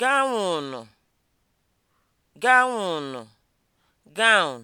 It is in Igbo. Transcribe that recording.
gawụnụ gawụnụ (gown)